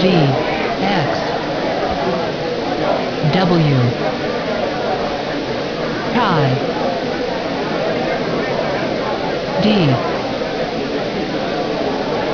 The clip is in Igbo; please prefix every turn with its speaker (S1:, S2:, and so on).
S1: G X W pi D